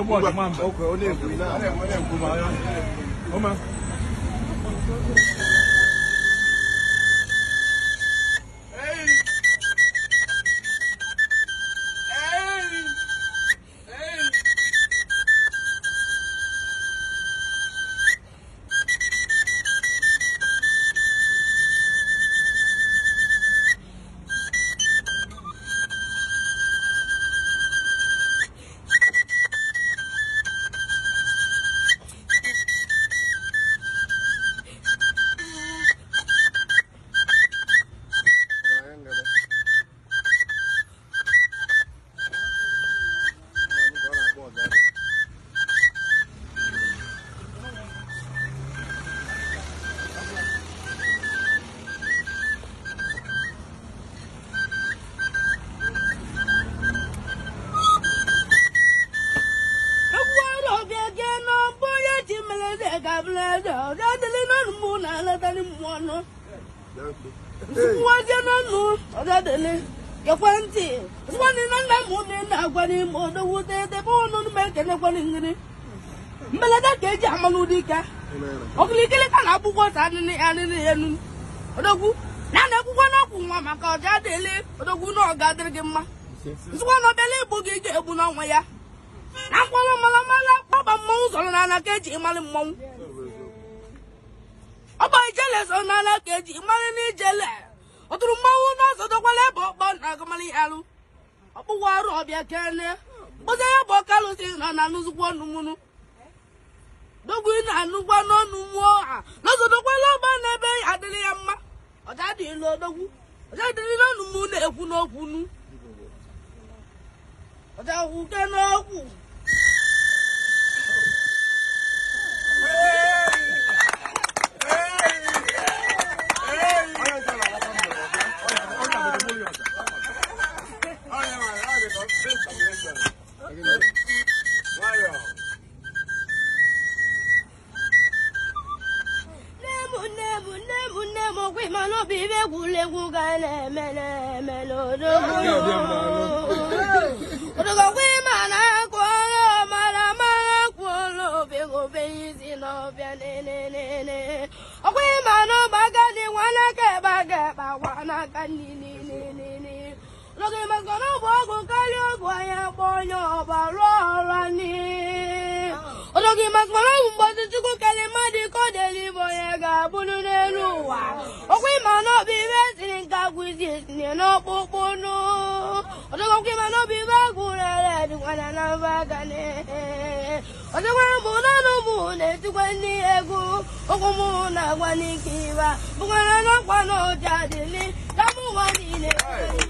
ọkọ̀ ó lè gbé náà. na-eje ọbịa na-anatarị na nna m na-agwa n'ime ma ekenekwanị na ta nwa maka ọja odogwu na ọga gị mma na ọbịala igbo gị ga-egbu n'ọnwa ya na mkpọrọ mara mara kpọba mmọnwụ n'ala ka eji mmọnwụ eze ọnala eji mmanụ n'ijele ọtụrụ mmanwụ n'ọzọ na agụmalị alụ ọkpụwa ọrụ ọbịa kene mkpụzi ya bụ ọkalụsi nọ na dogwu na-anụkwa n'ọnụ mmụọ ha n'ọzọ dọkwala ọba n'ebe ya mma ọja dịlụ di na-ekwu okwu nu ma n'obi ibe egwuregwu ga na-eme na-eme n'odogwu odogwu na-akụ ọrụ mara mara ọ obegbe ọkwụ n'ọbịa nenenene ọkwa ga n'oge maka na ọgwụ karịa ọgwụ anyị akpọ onye ọba rụọ ọrụ anyị ọnọgị maka na ọgwụ mgbọdụ chukwu karịa mmadụ ka ọ ga-abụrụ n'elu ụwa ọkwa ịma na ọ bụ ibe etiri nke agwụ isi etinye ịma na ọ bụ ibe ụmụ na-etikwa ndị egwu agwa ịba ụwa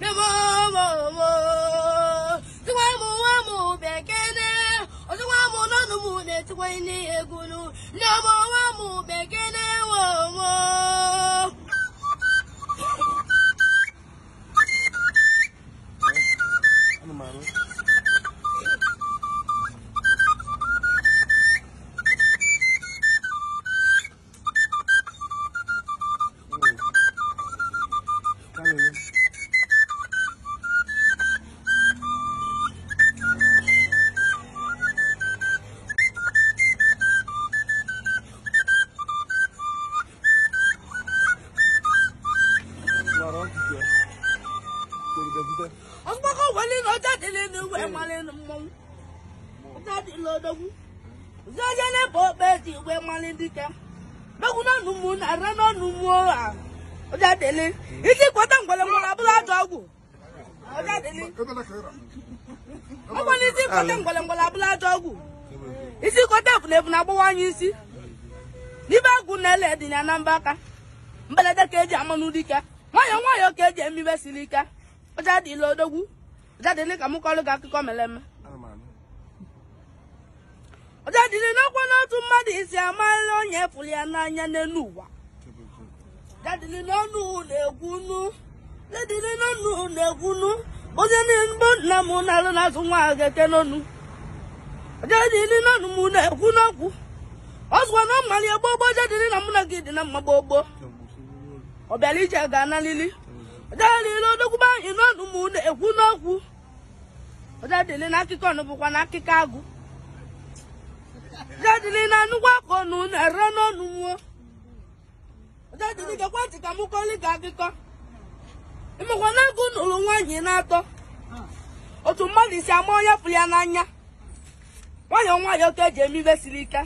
ndị ọmụ nwa mụ bekee na-ewe ọgbọkọ wọlé ní ọjà délé ní ìwé malé ní mmọnwụ ọjà iji agbawa isi n'ibe agwụ na-ele dị na anambaka mberede ka eji e amanụ dike nwayọọ nwayọọ ka eji emibe siri ike ụjadị o odogwu ụjadị ile ka m kọrọ gị akụkọ mere eme ụjadịli n'ọkwa n'otu mmadụ isi amarịla onye fụrụ ya n'anya n'elu ụwa ụjadịli n'ọnụ na na onye nbo nna na-alụ n'azụ nwa ahụ na-ekwu n'okwu ọ na ọ mara ya na mụ na gị dị na gbogbo ga-analili ọdadịle odokwuba anyị n'ọnụ ụmụ na ekwu n'okwu ọdadịle na akụkọ ọnụ bụkwa na akụkọ agụ na anụkwa aka ọnụ n'ọnụ mmụọ ọdadịle gekwa ntị ka m kọli akụkọ ịmakwa na agụ na-atọ otu mmadụ isi ama onye ya n'anya nwayọọ nwayọọ ka eji ike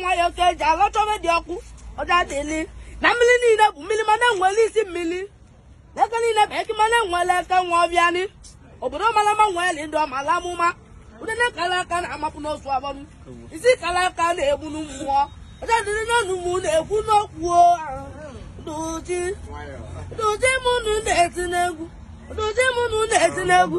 nwayọọ ka eji ala di ọkụ ọdadịle na mmiri niile bụ mmiri mana enwere isi mmiri n'aka niile bụ ekimana nwele aka nwa ọbịanị obodo malama nweli ndị ọmala amụma ụdịna kara aka na-amapụ n'otu abọnụ isi kara aka na-egbu n'mmụọ ọcha dịrị n'ọnụ mụ na-ekwu n'okwu doji doji mụnụ na-eti n'egwu doji mụnụ na-eti n'egwu